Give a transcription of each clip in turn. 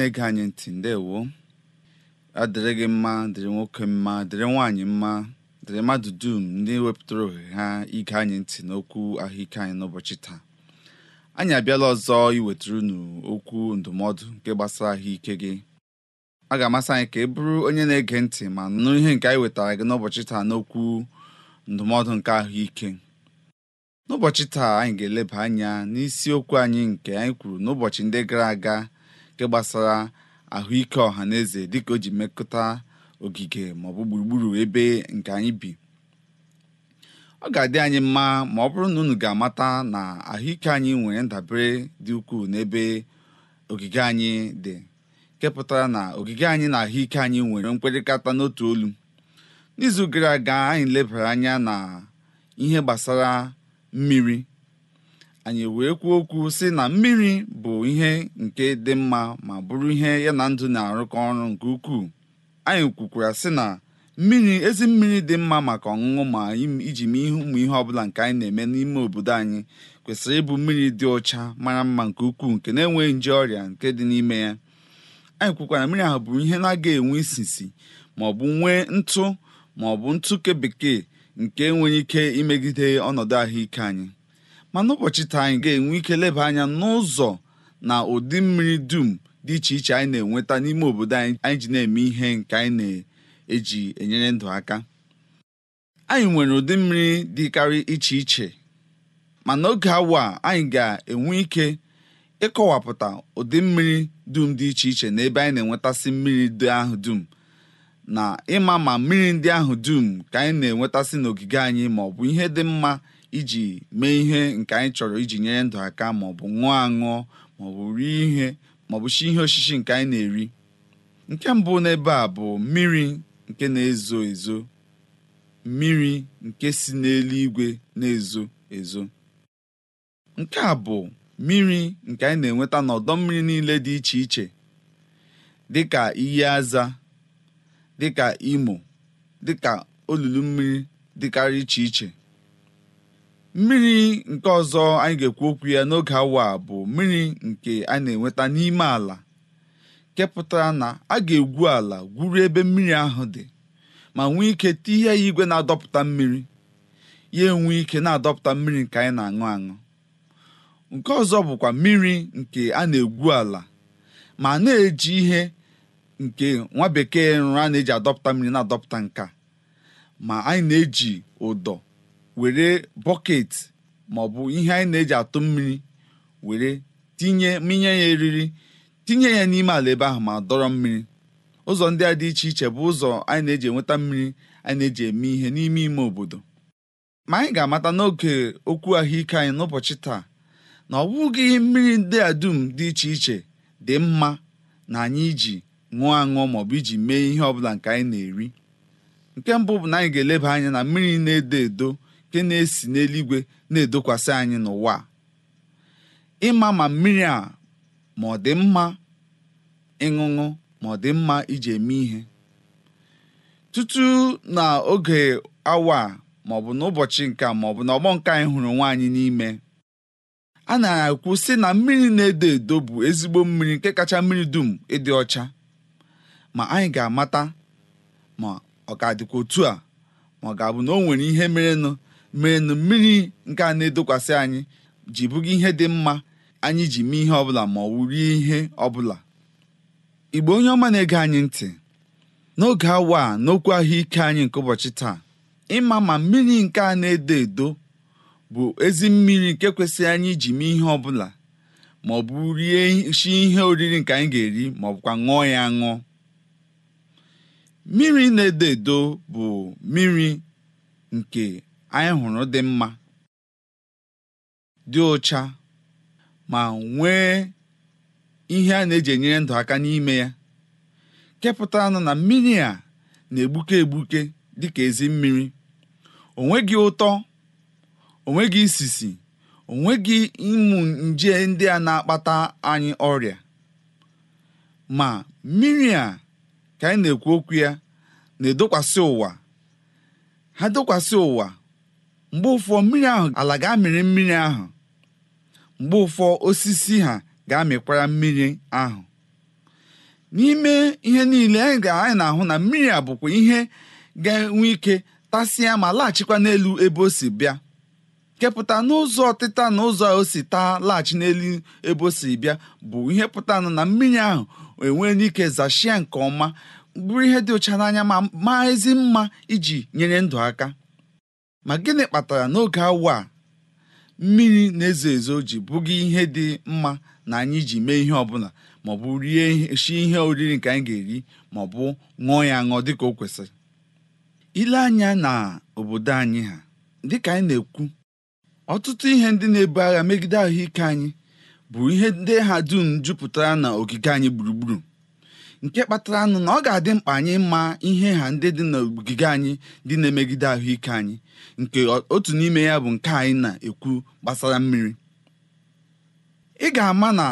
na-ege anyị ntị ndewo adịrị gị mma dịrị nwoke mma dịrị nwaanyị mma dịrị mmadụ dum ndị wepụtara ohere ha ige anyị ntị n'okwu ahụike anyị n'ụbọchị taa anyị abịala ọzọ iwetara unu okwu ndụmọdụ nke gbasara ahụike gị a ga-amasị anyị ka ị bụrụ onye na-ege ntị ma nụ ihe nke anyị wetara gị n'ụbọchị taa n'okwu ndụmọdụ nke ahụike n'ụbọchị taa anyị ga-eleba anya n'isiokwu anyị nke anyị kwuru n'ụbọchị ndị gara aga nke gbasara ahụike ọha na eze dịka o ji mekọta ogige maọbụ gburugburu ebe nke anyị bi ọ ga-adị anyị mma ma ọ bụrụ na unu ga-amata na ahụike anyị nwere ndabere dị ukwuu n'ebe ogige anyị dị kepụtara na ogige anyị na ahụike anyị nwere mkpịrịkata n'otu olu n'izu gara aga anyị lebara anya na ihe gbasara mmiri anyị wee kwuo okwu sị na mmiri bụ ihe nke dị mma ma bụrụ ihe ya na ndụ na-arụkọ ọrụ nke ukwuu anyị kwukwara sị na mmiri ezi mmiri dị mma maka ọṅụṅụ ma iji mee ihe ụmụ ihe ọbụla nke anyị na-eme n'ime obodo anyị kwesịrị ịbụ mmiri dị ọcha mara mma nke ukwuu nke na-enweghị nje ọrịa nke dị n'ime ya anyị kwukwara mmiri ahụ bụ ihe na-aga enwe isisi ma ọ bụ nwee ntụ ma ọ bụ ntụ ke bekee nke nwere ike imegide ọnọdụ ahụike anyị ma n'ụbọchị taa anyị ga-enwe ike leba anya n'ụzọ na ụdị mmiri dum dị iche iche anyị na-enweta n'ime obodo anyị anyị ji na-eme ihe nke anyị na-eji enyere ndụ aka anyị nwere ụdị mmiri dịkarị iche iche ma n'oge awa anyị ga-enwe ike ịkọwapụta ụdị mmiri dum dị iche iche na ebe anyị na-enwetasị mmiri ndị ahụ dum na ịma ma mmiri ndị ahụ dum ka anyị na-enwetasị n'ogige anyị ma ọ bụ ihe dị mma iji mee ihe nke anyị chọrọ iji nyere ndụ aka maọbụ ṅụọ aṅụọ maọbụ rie ihe maọbụ shi ihe osisi nke anyị na-eri nke mbụ n'ebe a bụ mmiri nke na-ezo ezo mmiri nke si n'eluigwe na-ezo ezo nke a bụ mmiri nke anyị na-enweta n'ọdọ mmiri niile dị iche iche dịka iyi aza dịka imo dịka olulu mmiri dịkarị iche iche mmiri nke ọzọ anyị ga-ekwu okwu ya n'oge awa bụ mmiri nke a na-enweta n'ime ala kepụtara na a ga-egwu ala gwuru ebe mmiri ahụ dị ma nwee ike tinye ya igwe na-adọpụta mmiri ya enwee ike na-adọpụta mmiri nke anyị na-aṅụ aṅụ nke ọzọ bụkwa mmiri nke a na-egwu ala ma na-eji ihe nke nwa bekee nrụ a na-eji adọpụta mmiri na-adọpụta nka ma anyị na-eji ụdọ were bọket maọbụ ihe anyị na-eji atụ mmiri were tinye minye ya eriri tinye ya n'ime ala ebe ahụ ma dọrọ mmiri ụzọ ndị a dị iche iche bụ ụzọ anyị na-eji enweta mmiri anyị na-eji eme ihe n'ime ime obodo ma anyị ga-amata n'oge okwu ahụike anyị n'ụbọchị taa na ọ bụghị mmiri ndị a dum dị iche iche dị mma na anyị iji ṅụọ aṅụọ maọbụ iji mee ihe ọbụla nke anyị na-eri nke mbụ bụ na anyị ga-eleba anya na mmiri na-edo edo nke na-esi n'eluigwe na-edokwasị anyị n'ụwa ịma ma mmiri a ma ọ dị mma ịṅụṅụ ma ọ dị mma iji eme ihe tutu na oge awa ma ọ bụ n'ụbọchị nke ma ọ bụ na ọgbọ nke anyị hụrụ nwaanyị n'ime a na-ekwu sị na mmiri na-edo edo bụ ezigbo mmiri nke kacha mmiri dum ịdị ọcha ma anyị ga-amata ma ọ ga-adịkwa otu a ma ọ ga-abụ na o nwere ihe merenụ mee mmiri nke a na-edokwasị anyị ji bụga ihe dị mma anyị ji mee ihe ọbụla ma ọ wụ ihe ọbụla igbo onye ọma na-ege anyị ntị n'oge awa a n'okwu ahụike anyị nke ụbọchị taa ịma ma mmiri nke a na-edo edo bụ ezi mmiri nke kwesịrị anyị ji mee ihe ọbụla ma ọ bụ rie shi ihe oriri nke anyị ga-eri ma ọ bụkwa ṅụọ ya ṅụọ mmiri na-edo edo bụ mmiri nke anyị hụrụ dị mma dị ụcha ma nwee ihe a na-eji enyere ndụ aka n'ime ya kepụtara na mmiri a na-egbuke egbuke dịka ezi mmiri onweghị ụtọ onweghị isisi onweghị ịmụ nje ndị a na-akpata anyị ọrịa ma mmiri a ka anyị na-ekwu okwu ya na-edokwasị ha dokwasị ụwa mgbe ụfọ mmiri ahụ ala ga-amịrị mmiri ahụ mgbe ụfọ osisi ha ga-amịkwara mmiri ahụ n'ime ihe niile anyị na-ahụ na mmiri a bụkwa ihe ga-enwe ike tasịa ma laghachikwa n'elu ebe o si bịa kepụta n'ụzọ ọtịta na ụzọ o si taa laghachi n'elu ebe o si bịa bụ ihe pụta na mmiri ahụ enwee ike zachie nke ọma bụrụ ihe dị ụcha n'anya ma maa ezi mma iji nyere ndụ aka Ma gịnị kpatara n'oge awa a mmiri na-ezo ezo ji bụghị ihe dị mma na anyị ji mee ihe ọbụla maọbụ rie shi ihe oriri nke anyị ga-eri maọbụ ṅụọ ya ṅụọ dịka o kwesịrị ile anya na obodo anyị ha dịka anyị na-ekwu ọtụtụ ihe ndị na-ebu agha megide ahụike anyị bụ ihe ndị ha dum jupụtara na ogige anyị gburugburu nke kpatara anụ na ọ ga-adị mkpa anyị mma ihe ha ndị dị n'ogige anyị dị na-emegide ahụike anyị nke otu n'ime ya bụ nke anyị na-ekwu gbasara mmiri ị ga-ama na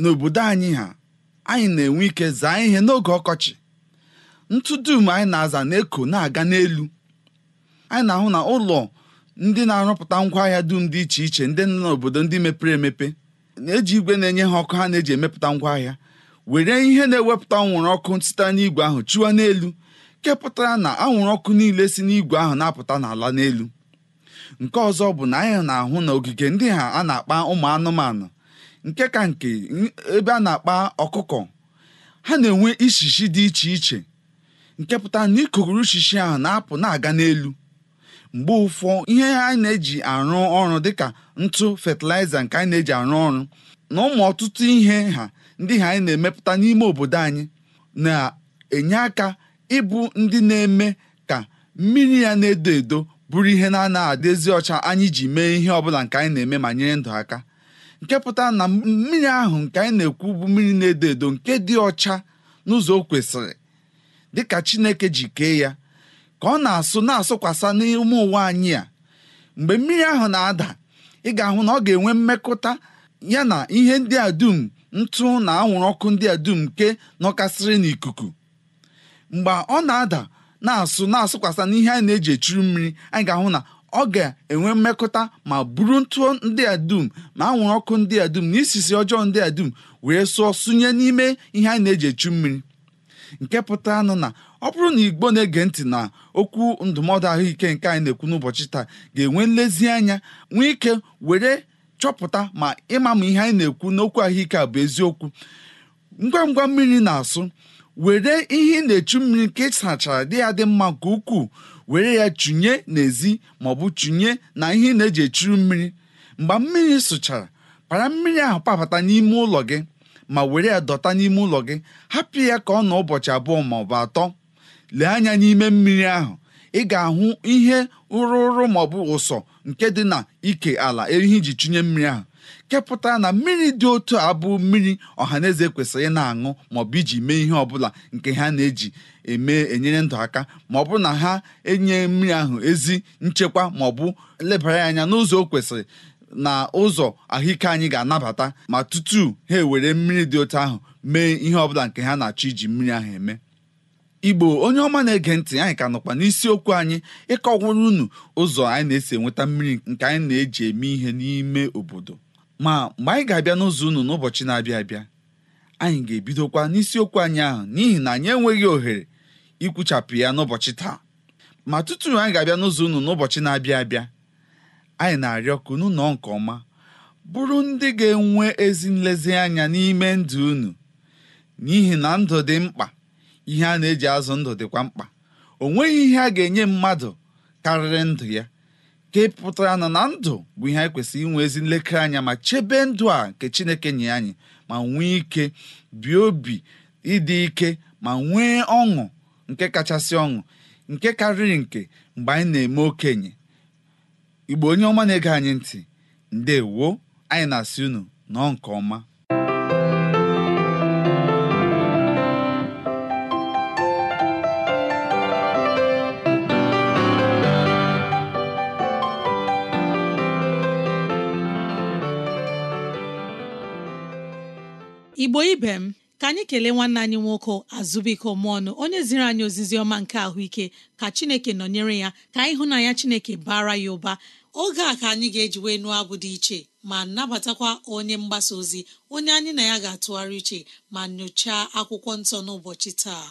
n'obodo anyị ha anyị na-enwe ike zaa ihe n'oge ọkọchị ntụ dum anyị na-aza na-eko na-aga n'elu anyị na-ahụ na ụlọ ndị na-arụpụta ngwaahịa dum dị iche iche ndị nọ n'obodo ndị mepere emepe na-eji igwe na-enye ha ọkụ ha na-eji emepụta ngwaahịa were ihe na-ewepụta anwụrụ ọkụ site n'igwe ahụ chụọ n'elu kepụtara na anwụrụ ọkụ niile si n'igwe ahụ na-apụta n'ala n'elu nke ọzọ bụ na anyị na-ahụ na ogige ndị ha a na-akpa ụmụ anụmanụ nke ka nke ebe a na-akpa ọkụkọ ha na-enwe ishishi dị iche iche nke pụtara na ikuguru ishishi ahụ na-apụ na-aga n'elu mgbe ụfọ ihe anyị na-eji arụ ọrụ dịka ntụ fatịlaịza nke anyị na-eji arụ ọrụ na ụmụ ọtụtụ ihe ha ndị ha anyị na-emepụta n'ime obodo anyị na-enye aka ịbụ ndị na-eme ka mmiri ya na-edo edo bụrụ ihe na-anaghị adịzi ọcha anyị ji mee ihe ọbụla nke anyị na-eme ma nyere ndụ aka nke pụtara na mmiri ahụ nke anyị na-ekwu bụ mmiri na-edo edo nke dị ọcha n'ụzọ o kwesịrị dịka Chineke ji kee ya ka ọ na-asụ na-asụkwasa n'ime ụwa anyị a mgbe mmiri ahụ na-ada ị ga-ahụ na ọ ga-enwe mmekọta ya na ihe ndị a dum ntụ na anwụrụ ọkụ ndị a dum nke nọkasịrị n'ikuku mgbe ọ na-ada na-asụ na-asụkwasa n'ihe anyị na-eji echuru mmiri anyị ga-ahụ na ọ ga-enwe mmekọta ma buru ntụ ndị a dum ma anwụrụ ọkụ ndị a dum na isisi ọjọọ ndị a dum wee sụọ sụnye n'ime ihe anyị na-eji echu mmiri nke pụtara nụ na ọ bụrụ na igbo na-ege ntị na okwu ndụmọdụ ahụike nke anyị na-ekwu n'ụbọchị taa ga-enwe nlezianya nwee ike were chọpụta ma ịma ma ihe anyị na-ekwu n'okwu ahụike a bụ eziokwu ngwa ngwa mmiri na-asụ were ihe na-echu mmiri nke sachara dị ya dị mma nke ukwuu were ya chụnye n'ezi maọbụ chụnye na ihe na-eji echuru mmiri mgbe mmiri sụchara para mmiri ahụ kpabata n'ime ụlọ gị ma were ya dọta n'ime ụlọ gị hapụ ya ka ọ nọ ụbọchị abụọ maọbụ atọ lee anya n'ime mmiri ahụ ị ga-ahụ ihe ụrụ maọbụ ụsọ nke dị na ike ala ehi ji chụnye mmiri ahụ kepụta na mmiri dị otu a bụ mmiri ọhaneze kwesịrị na-aṅụ maọbụ iji mee ihe ọbụla nke ha na-eji eme enyere ndụ aka ma ọ bụ na ha enye mmiri ahụ ezi nchekwa maọbụ lebara anya n'ụzọ o kwesịrị na ụzọ ahụike anyị ga-anabata ma tutu ha ewere mmiri dị otu ahụ mee ihe ọbụla nke ha na-achọ iji mmiri ahụ eme igbo onye ọma na-ege ntị anyị ka nọkwa n'isiokwu anyị ịkọwara unu ụzọ anyị na-esi enweta mmiri nke anyị na-eji eme ihe n'ime obodo ma mgbe anyị ga-abịa n'ụzọ unu n'ụbọchị na-abịa abịa anyị ga-ebidokwa n'isiokwu anyị ahụ n'ihi na anyị enweghị ohere ikwuchapụ ya n'ụbọchị taa ma tutu anyị ga-abịa n'ụzọ unu n'ụbọchị na-abịa abịa anyị na-arịọ ka unu nọọ nke ọma bụrụ ndị ga-enwe ezi nlezianya n'ime ndụ unu n'ihi na ndụ dị mkpa ihe a na-eji azụ ndụ dịkwa mkpa o nweghị ihe a ga-enye mmadụ karịrị ndụ ya ka pụtara na na ndụ bụ ihe anyị kwesịrị inwe ezi nlekere anya ma chebe ndụ a nke Chineke nye anyị ma nwee ike bie obi ịdị ike ma nwee ọṅụ nke kachasị ọṅụ nke karịrị nke mgbe anyị na-eme okenye Igbo onye ọma na-ege anyị ntị ndewo anyị na-asị unu nọọ nke ọma igbo ibe m ka anyị kelee nwanne anyị nwoke azụbụike ọnụ onye ziri anyị ozizi ọma nke ahụike ka chineke nọnyere ya ka na anyị hụ ya chineke bara ya ụba oge a ka anyị ga-eji wee nụọ abụ dị iche ma nabatakwa onye mgbasa ozi onye anyị na ya ga-atụgharị uche ma nyochaa akwụkwọ nsọ n'ụbọchị taa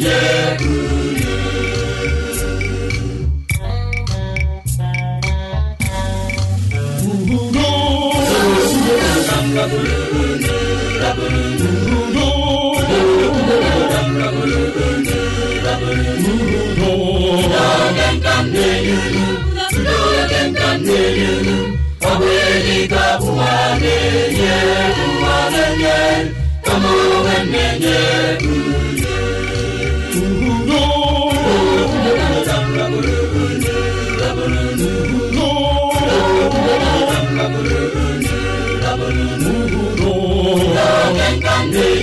Come on and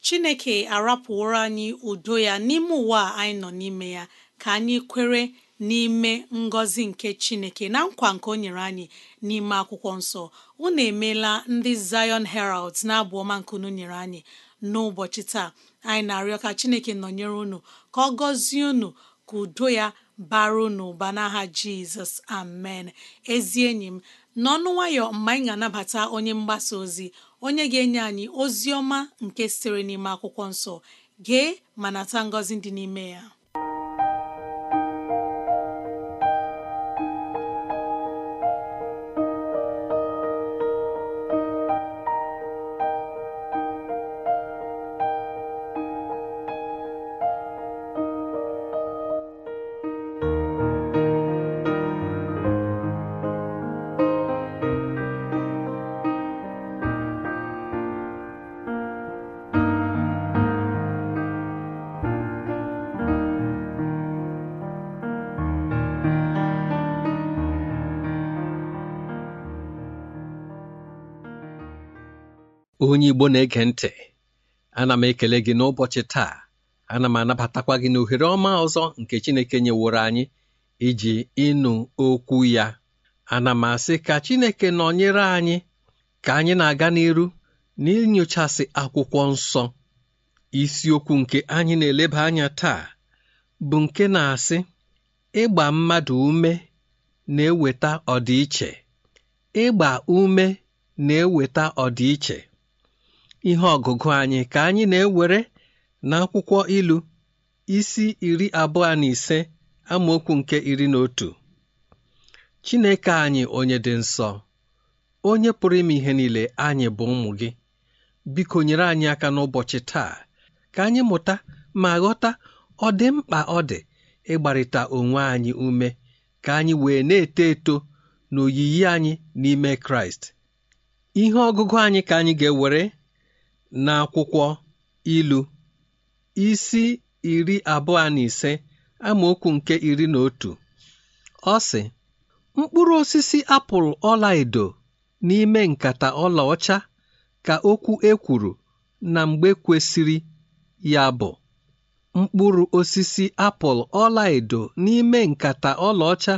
chineke arapụworo anyị udo ya n'ime ụwa anyị nọ n'ime ya ka anyị kwere n'ime ngọzi nke chineke na nkwa nke o nyere anyị n'ime akwụkwọ nsọ unu emeela ndị zion heralds na-abụ ọma nke unu nyere anyị n'ụbọchị taa anyị na-arịọ ka chineke nọnyere unu ka ọ gọzie unu ka udo ya bara n'ụba n'aha jizọs amen ezi enyi m n'ọnụ nwayọ mgbe anyị ga-anabata onye mgbasa ozi onye ga-enye anyị ozi ọma nke sitere n'ime akwụkwọ nsọ gee ma nata ngọzi dị n'ime ya onye Igbo na-ege ntị ana m ekele gị n'ụbọchị taa ana m anabatakwa gị n'ohere ọma ọzọ nke Chineke nyeworo anyị iji ịnụ okwu ya ana m asị ka Chineke nọnyere anyị ka anyị na-aga n'iru n'inyochasị akwụkwọ nsọ isiokwu nke anyị na-eleba anya taa bụ nke na-asị ịgba mmadụ ume na-eweta ọdịiche ịgba ume na-eweta ọdịiche ihe ọgụgụ anyị ka anyị na-ewere n'akwụkwọ ilu isi iri abụọ na ise amaokwu nke iri na otu Chineke anyị onye dị nsọ onye pụrụ ime ihe niile anyị bụ ụmụ gị biko nyere anyị aka n'ụbọchị taa ka anyị mụta ma ghọta ọ dị mkpa ọ dị ịgbarịta onwe anyị ume ka anyị wee na-eto eto n'oyiyi anyị n'ime Kraịst ihe ọgụgụ anyị ka anyị ga-ewere n'akwụkwọ ilu isi iri abụọ na ise amaokwu nke iri na otu ọ sị mkpụrụ osisi apụl ọlaedo n'ime nkata ọcha ka okwu ekwuru na mgbe kwesịrị ya bụ mkpụrụ osisi apụl ọla edo n'ime nkata ọlaọcha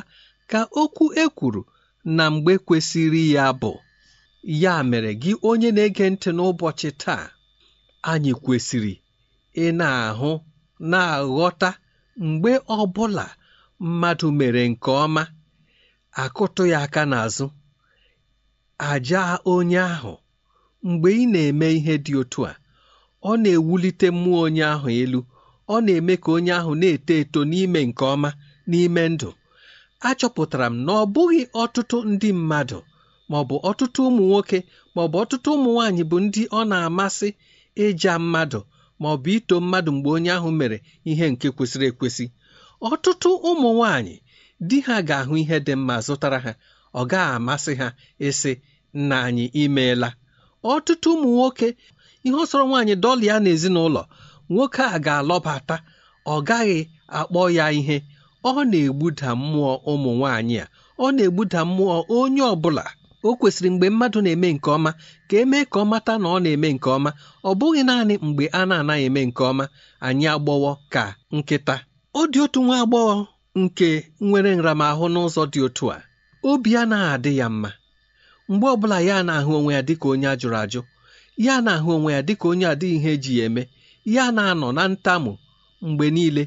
ka okwu ekwuru na mgbe kwesịrị ya bụ ya mere gị onye na-ege ntị n'ụbọchị taa anyị kwesịrị ị na-ahụ na-aghọta mgbe ọ bụla mmadụ mere nke ọma akụtụghị aka n'azụ aja onye ahụ mgbe ị na-eme ihe dị otu a ọ na-ewulite mmụọ onye ahụ elu ọ na-eme ka onye ahụ na-eto eto n'ime nke ọma n'ime ndụ achọpụtara m na ọ bụghị ọtụtụ ndị mmadụ bụ ọtụtụ ụmụ nwoke maọbụ ọtụtụ ụmụ nwaanyị bụ ndị ọ na-amasị ịja mmadụ maọbụ ito mmadụ mgbe onye ahụ mere ihe nke kwesịrị ekwesị ọtụtụ ụmụ nwaanyị di ha ga-ahụ ihe dị mma zụtara ha ọ gaghị amasị ha ịsị nna anyị imeela ọtụtụ ụmụ nwoke ihe ọ sọrọ nwaanyị dọlịa n'ezinụlọ nwoke a ga-alọbata ọ gaghị akpọ ya ihe ọ na-egbuda mmụọ ụmụ nwaanyị a ọ na-egbuda mmụọ onye ọ bụla o kwesịrị mgbe mmadụ na-eme nke ọma ka emee ka ọ mata na ọ na-eme nke ọma ọ bụghị naanị mgbe a na-anaghị eme nke ọma anyị agbọwọ ka nkịta ọ dị otu nwa agbọghọ nke nwere nramahụ n'ụzọ dị otu a obi anaghị adị ya mma mgbe ọbụla ya na-ahụ onwe ya dịka onye a jụrụ ajụ ya na-ahụ onwe ya dịka onye adịghị ihe eji ya eme ya na-anọ na ntamu mgbe niile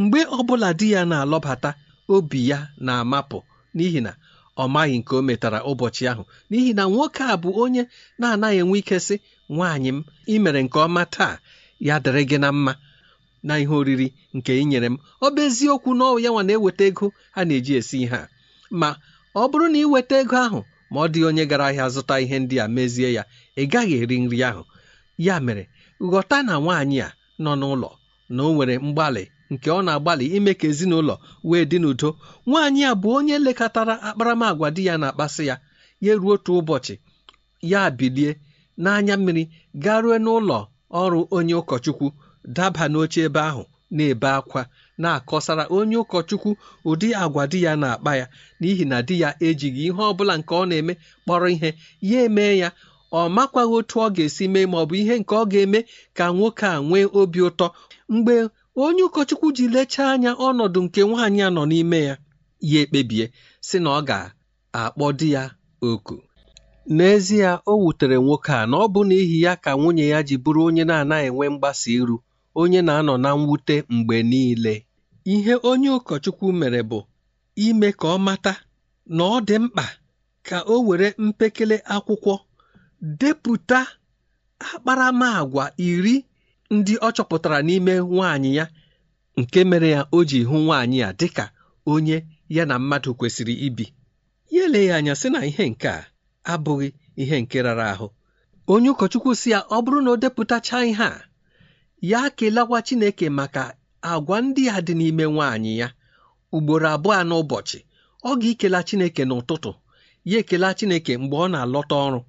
mgbe ọbụla di ya na-alọbata obi ya na-amapụ n'ihi na ọ maghị nke o metara ụbọchị ahụ n'ihi na nwoke a bụ onye na-anaghị enwe ike sị nwaanyị m ị mere nke ọma taa ya dịrị gị na mma na ihe oriri nke ị nyere m ọ bụ eziokwu na ya nwa na-eweta ego a na-eji esi ihe a ma ọ bụrụ na ị weta ego ahụ ma ọ dị onye gara ahịa zụta ihe ndị a mezie ya ị gaghị eri nri ahụ ya mere ghọta na nwaanyị a nọ n'ụlọ na o nwere mgbalị nke ọ na-agbalị ime ka ezinụlọ wee dị n'udo nwaanyị a bụ onye lekọtara akparamagwa di ya na-akpasị ya ya ruo otu ụbọchị ya bilie n'anya mmiri garue n'ụlọ ọrụ onye ụkọchukwu daba n'oche ebe ahụ na-ebe akwa na-akọsara onye ụkọchukwu ụdị agwa di ya na-akpa ya n'ihi na di ya ejighị ihe ọ bụla nke ọ na-eme kpọrọ ihe ya emee ya ọ makwaghị otu ọ ga-esi mee ma ọ bụ ihe nke ọ ga-eme ka nwoke a nwee obi ụtọ mgbe onye ụkọchukwu ji lechaa anya ọnọdụ nke nwaanyị a nọ n'ime ya ya ekpebie si na ọ ga-akpọ di ya oku n'ezie o wutere nwoke a na ọ bụ n'ihi ya ka nwunye ya ji bụrụ onye na-anaghị enwe mgbasa iru onye na-anọ na mwute mgbe niile ihe onye ụkọchukwu mere bụ ime ka ọ mata na ọ dị mkpa ka o were mpekele akwụkwọ depụta akparamagwa iri ndị ọ chọpụtara n'ime nwaanyị ya nke mere ya o ji hụ nwaanyị ya dịka onye ya na mmadụ kwesịrị ibi ya eleghị anya sị na ihe nke a abụghị ihe nke rara ahụ onye ụkọchukwu si ya ọ bụrụ na o depụtacha ihe a ya kelewa Chineke maka agwa ndị a dị n'ime nwaanyị ya ugboro abụọ n'ụbọchị ọ ga-ekela Chineke n'ụtụtụ ya ekela Chineke mgbe ọ na-alọta ọrụ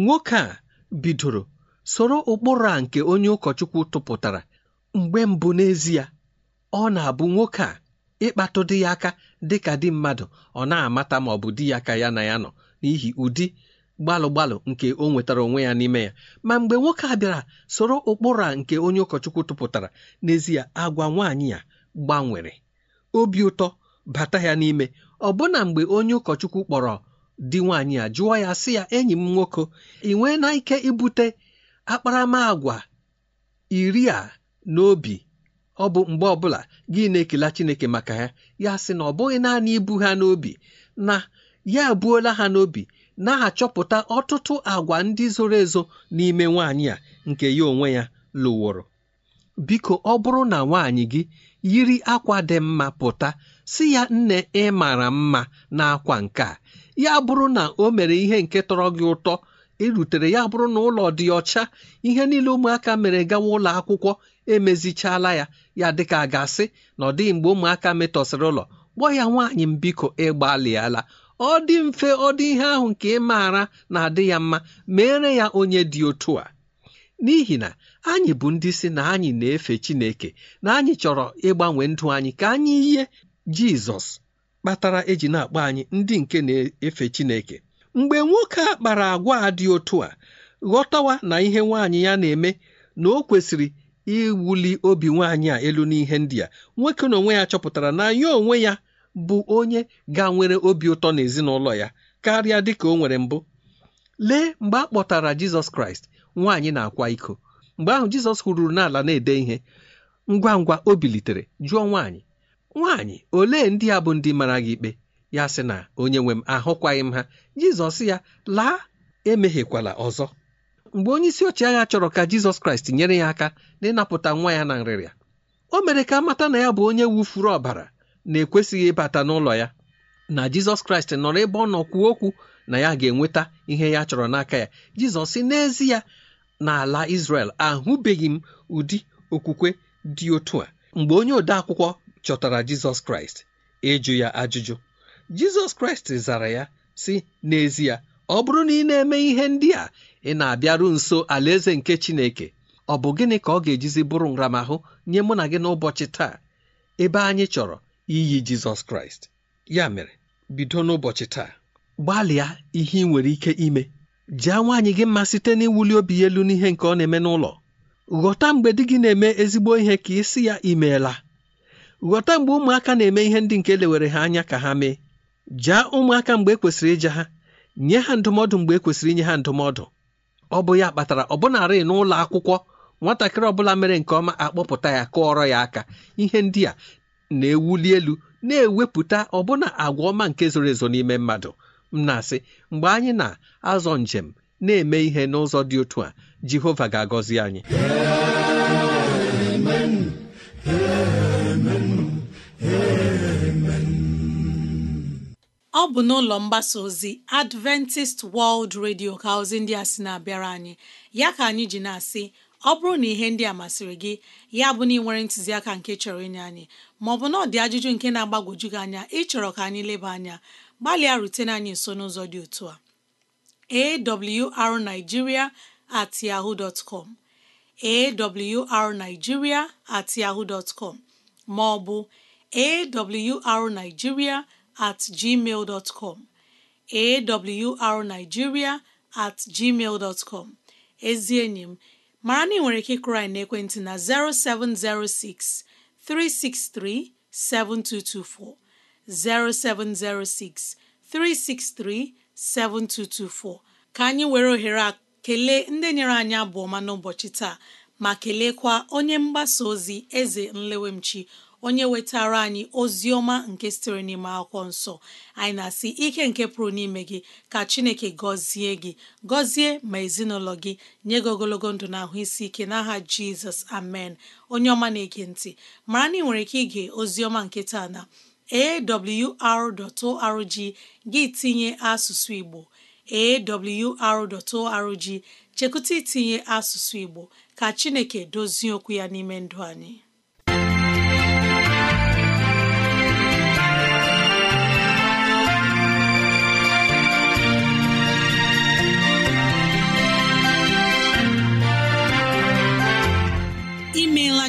nwoke a bidoro soro ụkpụrụ a nke onye ụkọchukwu tụpụtara mgbe mbụ n'ezie ọ na-abụ nwoke a ịkpatụ dị ya aka dị ka di mmadụ ọ na-amata ma ọ bụ di ya ka ya na ya nọ n'ihi ụdị gbalụ gbalụ nke o nwetara onwe ya n'ime ya ma mgbe nwoke a bịara soro ụkpụrụ a nke onye ụkọchukwu tụpụtara n'ezie agwa nwaanyị ya gbanwere obi ụtọ bata ya n'ime ọbụna mgbe onye ụkọchukwu kpọrọ di nwaanyị a jụọ ya sị ya enyi m nwoke ị nwee na ike ibute akparamagwa iri a n'obi ọ bụ mgbe ọbụla gị na-ekela Chineke maka ya ya sị na ọ bụghị naanị ibu ha n'obi na ya ebuola ha n'obi na-achọpụta ọtụtụ agwa ndị zoro ezo n'ime nwanyị a nke ya onwe ya lụworo biko ọ bụrụ na nwaanyị gị yiri akwa dị mma pụta si ya nne ị mara mma n'akwa nke a ya bụrụ na o mere ihe nke tọrọ gị ụtọ erutere ya bụrụ na ụlọ dị ọcha ihe niile ụmụaka mere gawa ụlọ akwụkwọ emezichala ya ya dịka gasị asị na ọ dịghị mgbe ụmụaka metọsịrị ụlọ gbọ ya nwaanyị m biko ịgbalịala ọ dị mfe ọ dị ihe ahụ nke ị maara na-adị ya mma mere ya onye dị otu a n'ihi na anyị bụ ndị si na anyị na-efe Chineke na anyị chọrọ ịgbanwe ndụ anyị ka anyị yie Jizọs kpatara eji na-akpọ anyị ndị nke na-efe Chineke mgbe nwoke a kpara agwa a dị otu a ghọtawa na ihe nwaanyị ya na-eme na o kwesịrị iwuli obi nwaanyị a elu n'ihe ndị a nwoke na onwe ya chọpụtara na ya onwe ya bụ onye ga-nwere obi ụtọ n'ezinụlọ ya karịa dị ka o nwere mbụ lee mgbe a kpọtara Jizọs Kraịst nwaanyị na-akwa iko mgbe ahụ Jizọs hụrụ n'ala na-ede ihe ngwa ngwa o bilitere jụọ nwaanyị nwaanyị olee ndị a bụ ndị mara gị ikpe ya sị na onye nwe m ahụkwaghị m ha jizọs ya laa emehiekwala ọzọ mgbe onye isi ọchịagha chọrọ ka jizọs kraịst nyere ya aka n'ịnapụta nwa ya na nrịrịa o mere ka amata na ya bụ onye wufuru ọbara na-ekwesịghị ịbata n'ụlọ ya na jizọs kraịst nọrọ ebe ọ nọ kwuo okwu na ya ga-enweta ihe ya chọrọ n'aka ya jizọs si na n'ala Israel ahụbeghị m ụdị okwukwe dị otu a mgbe onye odeakwụkwọ chọtara jizọs kraịst ịjụ ya ajụjụ jizọs kraịst zara ya sị n'ezie ọ bụrụ na ị na-eme ihe ndị a ị na-abịaru nso alaeze nke chineke ọ bụ gịnị ka ọ ga-ejizi bụrụ nramahụ nye mụ na gị n'ụbọchị taa ebe anyị chọrọ iyi jizọs kraịst ya mere bido n'ụbọchị taa gbalịa ihe ị nwere ike ime jee nwaanyị gị mma site n'iwuli obi elu n'ihe nke ọ na-eme n'ụlọ ghọta mgbe di gị na-eme ezigbo ihe ka ị ya imeela ghọta mgbe ụmụaka na-eme ihe ndị nke lewere ha anya ka ha mee jaa ụmụaka mgbe e kwesịrị ịja ha nye ha ndụmọdụ mgbe e kwesịrị inye ha ndụmọdụ ọ bụ ya kpatara ọbụnarị n'ụlọ akwụkwọ nwatakịrị ọbụla mere nke ọma akpọpụta ya kụọrọ ya aka ihe ndị a na-ewuli elu na-ewepụta ọbụna agwa ọma nke zoro ezo n'ime mmadụ m na-asị mgbe anyị na-azọ njem na-eme ihe n'ụzọ dị otu a jehova ga-agọzi anyị ọ bụ n'ụlọ mgbasa ozi Adventist World Radio ka ozi ndị a sị na-abịara anyị ya ka anyị ji na-asị ọ bụrụ na ihe ndị a masịrị gị ya bụ na ị nwere ntụziaka nke chọrọ ịnye anyị maọbụ na ọ dị ajụjụ nke na-agbagwoju gị anya ịchọrọ ka anyị leba anya gbalịa rutene anyị nso n'ụzọ dị otu a arigiria at yahoo com at maọbụ at gmail com at gmail com ezi enyi m mara na ị nwere ike ịkụrụ anyị n'ekwentị na 0706 363 7224 0706 363 7224 ka anyị were ohere a kelee ndị nyere anyị abụ ọma n'ụbọchị taa ma kelekwa onye mgbasa ozi eze nlewemchi onye wetara anyị ozi ọma nke sitere n'ime akwụkwọ nsọ anyị na-asị ike nke pụrụ n'ime gị ka chineke gọzie gị gọzie ma ezinụlọ gị nye gị ogologo ndụ na ahụ isi ike n'aha jizọs amen onye ọma na-ege ntị mara na ị nwere ike ige ozi ọma nke taa na awr.org gị tinye asụsụ igbo awr.org chekụta itinye asụsụ igbo ka chineke dozie okwu ya n'ime ndụ anyị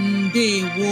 ndewo